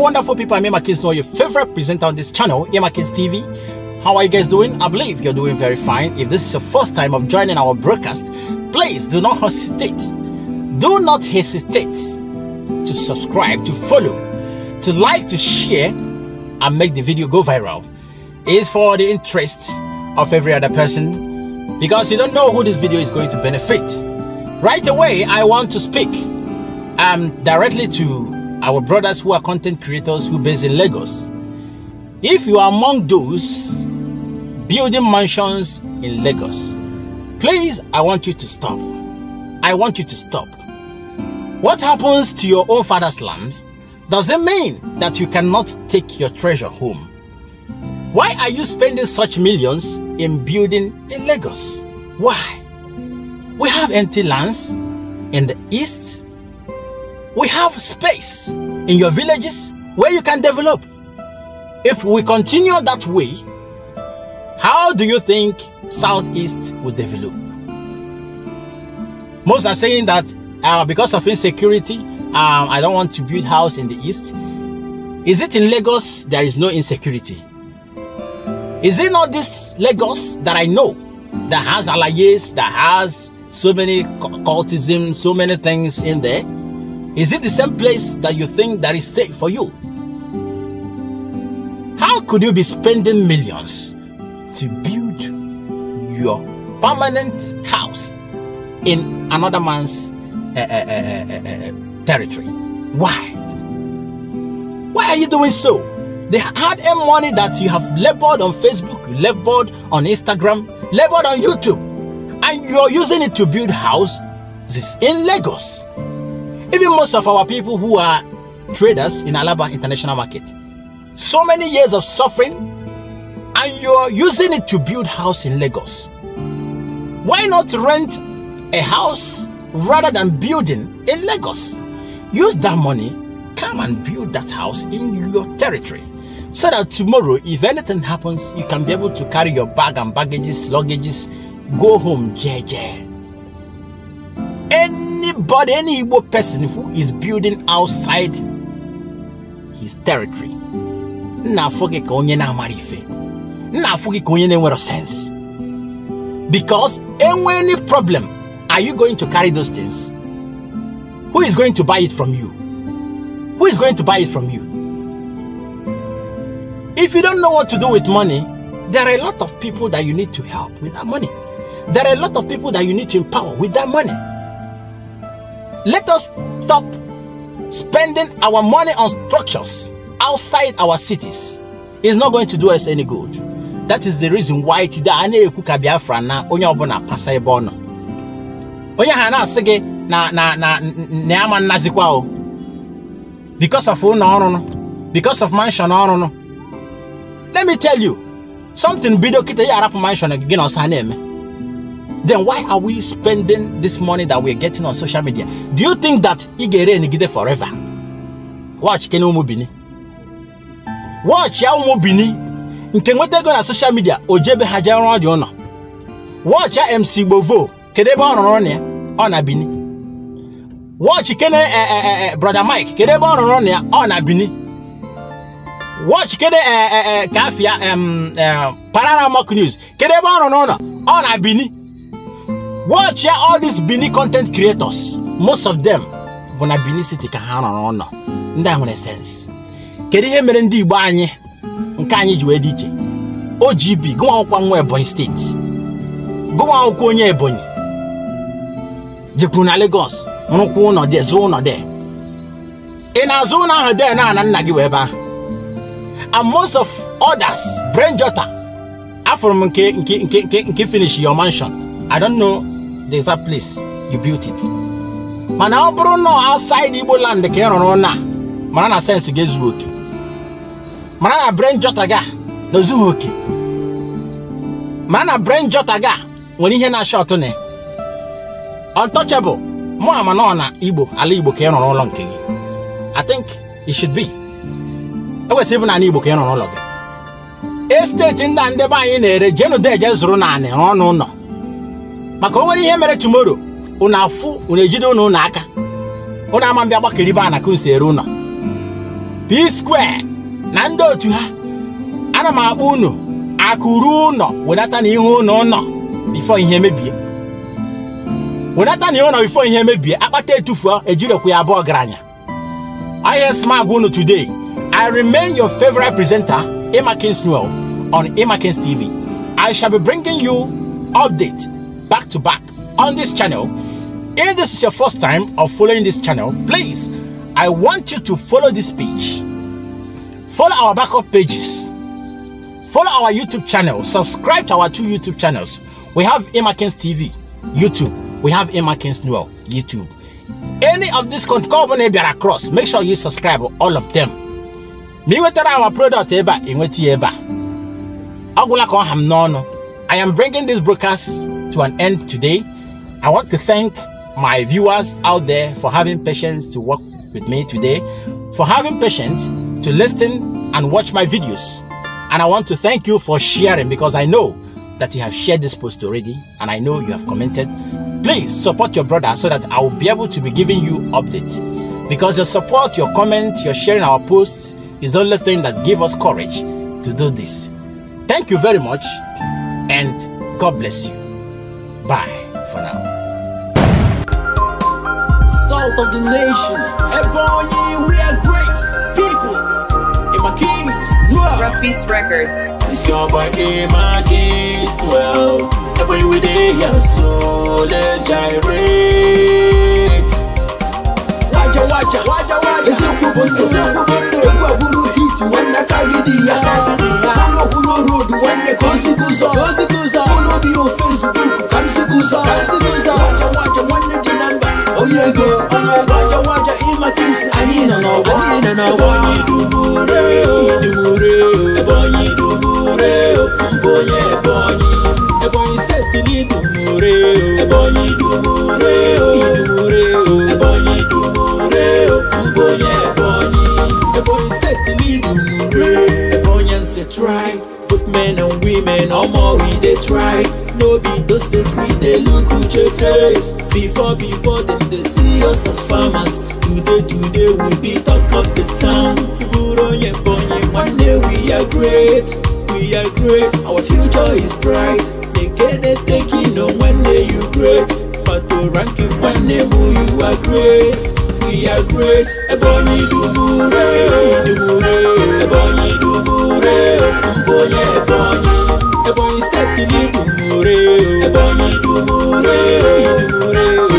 wonderful people. I'm Emma know your favorite presenter on this channel, Emma Kings TV. How are you guys doing? I believe you're doing very fine. If this is your first time of joining our broadcast, please do not hesitate. Do not hesitate to subscribe, to follow, to like, to share, and make the video go viral. It is for the interest of every other person because you don't know who this video is going to benefit. Right away, I want to speak um, directly to our brothers who are content creators who based in Lagos. If you are among those building mansions in Lagos, please, I want you to stop. I want you to stop. What happens to your own father's land doesn't mean that you cannot take your treasure home. Why are you spending such millions in building in Lagos? Why? We have empty lands in the east, we have space in your villages where you can develop. If we continue that way, how do you think Southeast will develop? Most are saying that uh, because of insecurity, um, I don't want to build house in the East. Is it in Lagos there is no insecurity? Is it not this Lagos that I know that has alayes, that has so many cultism, so many things in there? Is it the same place that you think that is safe for you? How could you be spending millions to build your permanent house in another man's uh, uh, uh, territory? Why? Why are you doing so? The hard earned money that you have labored on Facebook, labored on Instagram, labored on YouTube, and you are using it to build houses in Lagos. Even most of our people who are traders in Alaba international market. So many years of suffering and you're using it to build house in Lagos. Why not rent a house rather than building in Lagos? Use that money, come and build that house in your territory so that tomorrow, if anything happens, you can be able to carry your bag and baggages, luggages, go home, JJ. But any Igbo person who is building outside his territory, na-afụ gị onye na marife, na-afụ gị onye na-enwero sense. Because enwe any problem, are you going to carry those things? Who is going to buy it from you? Who is going to buy it from you? If you don't know what to do with money, there are a lot of people that you need to help with that money. There are a lot of people that you need to empower with that money. Let us stop spending our money on structures outside our cities. It's not going to do us any good. That is the reason why today a na-ekwu ka Biafra na onye ọbụla pasa ebe ọ nọ. Onye ha na na na na na ya o. Because of no no, because of mansion no. Let me tell you, something Video kịta ya arapụ mansion gị na osa then why are we spending this money that we're getting on social media? Do you think that Igere Nigide forever? Watch Kenu Mubini. Watch Yao Mubini. nke nwetego na social media o jebe ha jee rụọ dị MC Bovo. kedu ebe ọ rụrụ na ya ọ na Bini wọchị kene eh, eh, eh, brother Mike kedu ebe ọ rụrụ na ya ọ na Bini wọchị kede kafia Paramount News kedu ebe ọ rụrụ ona Bini watch ya all these Benin content creators most of them bụ na Benin City ka ha rọrọ ụlọ ndị a nwere sense kedu ihe mere ndị Igbo anyị nke anyị ji wee dị iche OGB gụnwa akwụkwọ nwa Ebonyi steeti gụnwa akwụkwọ onye Ebonyi jekwuru na Lagos rụkwụ ụlọ dị zụọ ụlọ dị ị na-azụ ụlọ ahụ dị na nna gị wee ebe and most of others brain jota m nke nke nke nke finish your mansion I don't know the exact place you built it mana ọ bụrụ nọ outside Igbo land ka ị rụrụ na mara na sense ga-ezu oke mara na brain jota ga na ozughị oke mara na brain jota ga nwere ihe na shot na untouchable mụ ama nọ na Igbo ala Igbo ka ị rụrụ ụlọ nke gị I think it should be e kwesịrị ịbụ n'ala Igbo ka ị rụrụ ụlọ gị esteeti ndị a ndị anyị na-ere jenu deje zụrụ naanị ọnụ ụlọ maka o nwere ihe mere tumoro unu afụ unu ejide unu ụnụ aka unu ama mbịa gbakeribe ana nsi ere ụnọ p square na ndị otu ha ana m akpọ unu akụrụ ụnọ wedata na ihe ụnọ ụnọ bifo ihe mebie wedata na ihe ụnọ bifo ihe mebie akpata etufuo ejirokwa ya abụọ ọgaranya ihe ah, smag unu today I remain your favorite presenter Emakins Noel on Emakins TV I shall be bringing you updates back to back on this channel. If this is your first time of following this channel, please, I want you to follow this page. Follow our backup pages. Follow our YouTube channel. Subscribe to our two YouTube channels. We have Emakins TV, YouTube. We have Emakins Noel, YouTube. Any of these company are across, make sure you subscribe all of them. Me wetara our product eba, inweti eba. Agula I am bringing this broadcast to an end today. I want to thank my viewers out there for having patience to work with me today, for having patience to listen and watch my videos. And I want to thank you for sharing because I know that you have shared this post already and I know you have commented. Please support your brother so that I will be able to be giving you updates. Because your support, your comments, your sharing our posts is the only thing that give us courage to do this. Thank you very much and God bless you. Bye for now. Salt of the nation, Ebony, we are great people. Emma Kings, well. Beats Records. It's your boy Emma Kings, well. Ebony, we the your soul gyrate. Waja, waja, waja, waja. It's your problem, it's your problem. Ekwa buru hiti, wanda kagidi ya. Fano kulo road, wanda kosi kuzo. Kosi kuzo. ego onye ụlọ ajọwa aja ịmaka isi anyị nọ n'ọgbọ anyị nọ n'ọgbọ onye idumure oh. idumure ebe oh. onye idumure mbụ oh. onye ebonyi ebonyi steeti na idumure ebe onye idumure idumure ebe onye idumure mbụ onye ebonyi ebonyi steeti na idumure ebonyi is the tribe good men and women ọmọ we dey try Days before before them they see us as farmers today today we be talk of the town gbúrò yẹn one day we are great we are great our future is bright nekede you. on one day you great pato ranking one day mu you are great we are great Ebonyi dumure dumure Ebonyi dumure okunboye Ebonyi. Ebonyi state ni Idumure o Ebonyi Idumure o Idumure o.